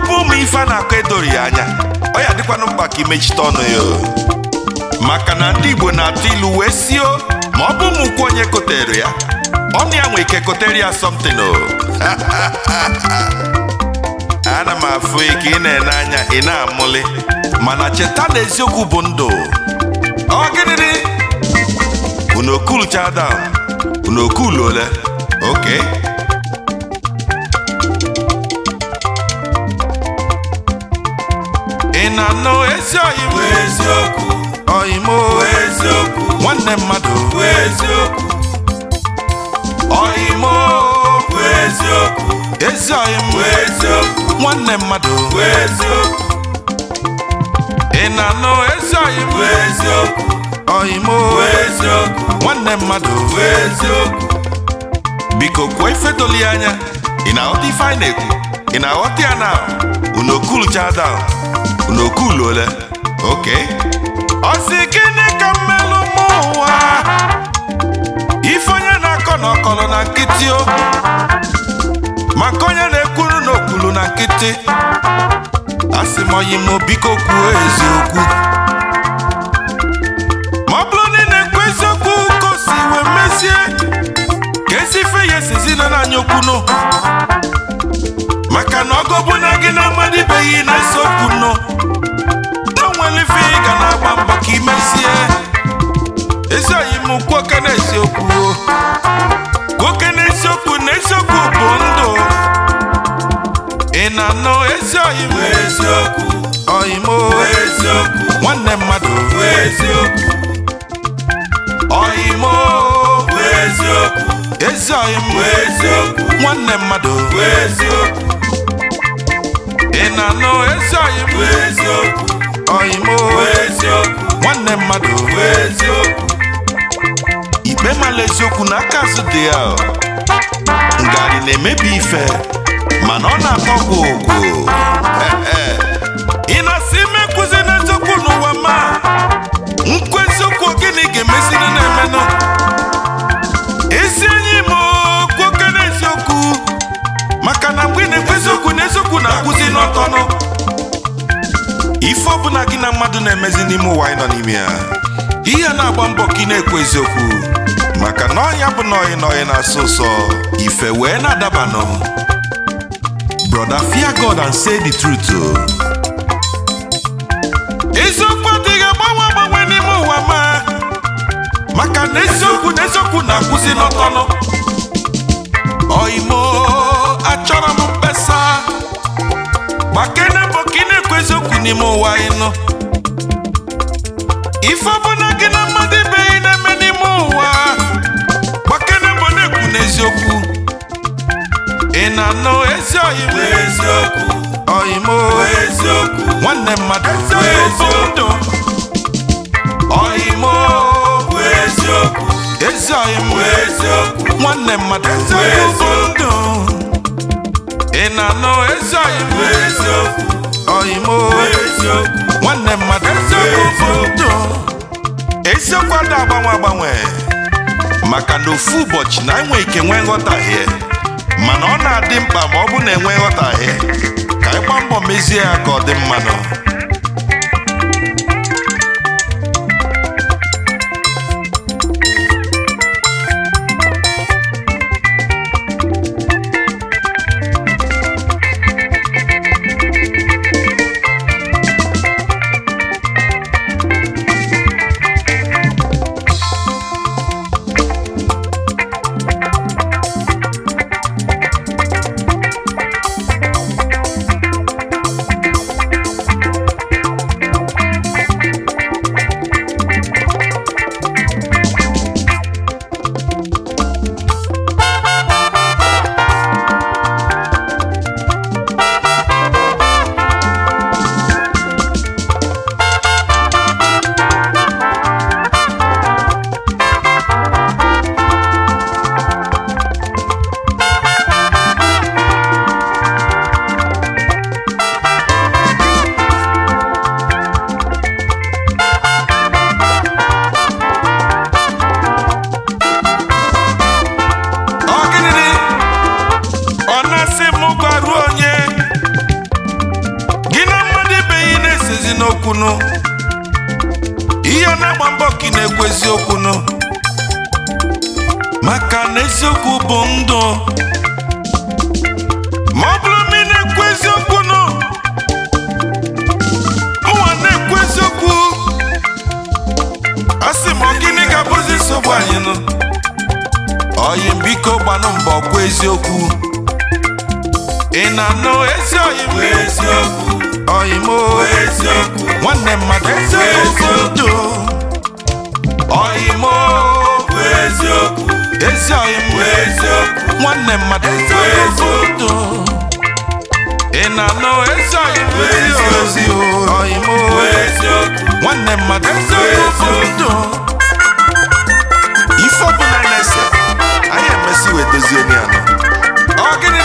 ọ bụ ụmụ ife a na-akọ edori ya anya ọ ya dịkwanụ mkpa ka imechite ọnụ ya maka na ndị Igbo na-atụ ilu wee sio ma ọ bụ ụmụ ukwu onye kotere ya ọnụ ya nwee ike kotere ya something ana m afụ ike ị na-ene anya ị na amụlị mana cheta na eziokwu bụ ndụ ọ gịnịdị unu okulu chadam unu ole oke ị na-anụ ezi oyibo eziokwu oyimo eziokwu nwanne mmadụ eziokwu oyimo eziokwu ezi oyimo eziokwu nwanne mmadụ eziokwu ị na ezi oyibo eziokwu oyimo eziokwu nwanne mmadụ eziokwu biko kwuo ife doli anya ị na-aghọta ife anyị na-ekwu ị na-aghọta ya na unu okuluchada n'okuluole oke ọ gịnị ka mmelụ mụ ụwa ife onye na-akọ na ọkọlụ na nkịtị o maka onye na-ekwuru n'okpulu na nkịtị asị m oyi m biko kwuo eziokwu ma ọ na ị na-ekwu eziokwu ka wee mezie ka esi ife ya esizi na anyị okwunu maka na ọgọ bụ na gị na-amadibeghị na eziokwu nwanne mmadụ bụ eziokwu bụ eziokwu ezi eziokwu nwanne mmadụ bụ eziokwu ị na-anụ ezi ọyịm eziokwu bụ eziokwu nwanne mmadụ bụ eziokwu ikpe mala eziokwu n'aka azụ dị ngarị na-emebi ife mana ọ na akpọ gwụ na-emezi n'ime ụwa anyị nọ n'ime ya ihe na-agba mbọ ka ị na-ekwu eziokwu maka na ọnya bụ na n'ọyị na-asọ ụsọ ife wee na-adabanụ brother fear God and say the truth eziokwu adịghị ife ọbụla gị na mmadụ ibe ihe na-eme n'ime ụwa na mbọ na-ekwu n'eziokwu ị na-anụ ezi ọyịmụ eziokwu ọyịmụ eziokwu nwanne mmadụ eziokwu ọyịmụ eziokwu ezi ọyịmụ eziokwu nwanne mmadụ eziokwu ndụ ị na-anụ ezi ọyịmụ eziokwu nwanne mmadụ ndụ eziokwu ada agbanwe agbanwe maka na ofu ụbọchị na enwe ike nwee nghọtahie mana ọ na-adị mkpa ma ọ bụ na enwe nghọtahie ka ịgba mbọ mezie ya ka ọ dị mmanụ eziokwu ihe na-agba mbọ ka ị na-ekwu eziokwu nụ maka na eziokwu bụ ndụ ma ọ bụrụ na ị na-ekwu eziokwu nụ Ụwa na-ekwu eziokwu a sị ma gịnị ga-abụzi nsogbu anyị nụ oyi biko gbanụ mbọ kwa eziokwu ị na-anụ eziokwu ọyịmọ nwanne mmadụ eziokwu ndụ ezi nwanne mmadụ eziokwu ndụ ị na-anọ ezi nwanne mmadụ eziokwu ndụ ife ọbụla na-ese anyị emesi wee dozie ya